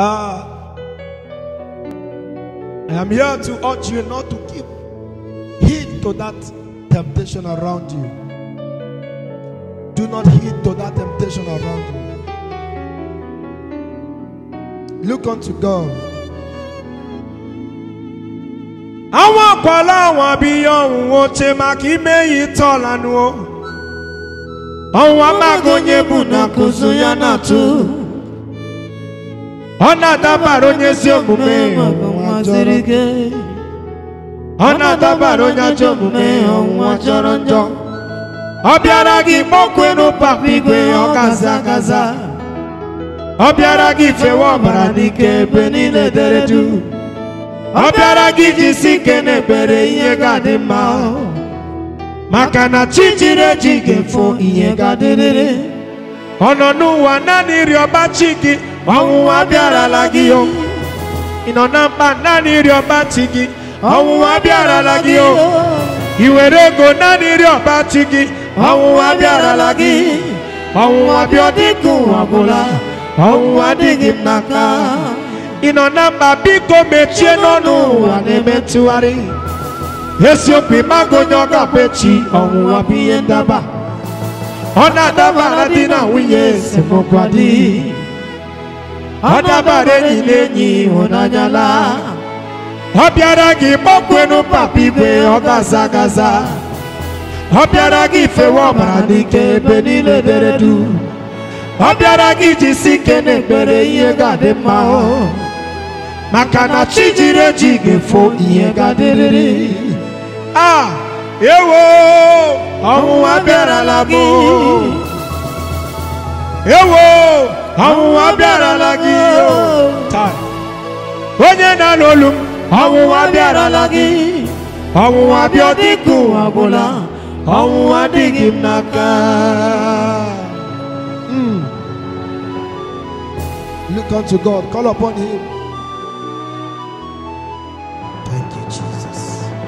Uh, ah. I am here to urge you not to give heed to that temptation around you. Do not heed to that temptation around you. Look unto God. ọ na-adabara onye ezi omume ọ na-adabara onye ajọ omume ọnwụnwa chọrọ njọ ọ bịara gị mọkwe n'ụpapụ igwe ọkaza akaza ọ bịara gị ifewe ọbara n'ike ebe niile dere duu ọ bịara gị iji si ike na-ebere ihe ga-adị mma maka na chi jiri eji ga-efo ihe ga-adịrịrị ọ nọ n'ụwa naanị ịrịọba chi gị ọnwụnwa bịarala gị o ị nọ na mkpa naanị ịrịọ pati gị ọnwụnwa bịarala gị o ị were ego naanị ịrịọ pati gị ọnwụnwa bịarala gị ọnwụnwa bịa dịka ụwa ọbụla ọnwụnwa adịghị m n'aka ị nọ na mba biko mechie n'ọnụ ụwa na-eme ntụgharị esiokwu ịmago onye ọ ga-akpa echi ọnwụnwa bụ ihe ndaba ọ na-adaba na di na nwunye esemokwu adịghị ọ dabara enyi na enyi ịhụnanya laa ọ bịara gị gbakwenu papa igwe ọ gaza gaza ọ bịara gị ifewe ọbara n'ike ebe niile dere du ọ bịara gị iji ike na-ekpere ihe ga-adị mma o maka na chi jiri eji ga-efo ihe ga-adịrịrị a ewo ọnwụnwa bịarala bụ ewo ọnwụnwa bịarala lagi, O onye na-anụ olu m ọnwụnwa bịarala gị ọnwụnwa bịa dịka ụwa n'aka hmm. Look unto God, call upon Him. Thank you, Jesus.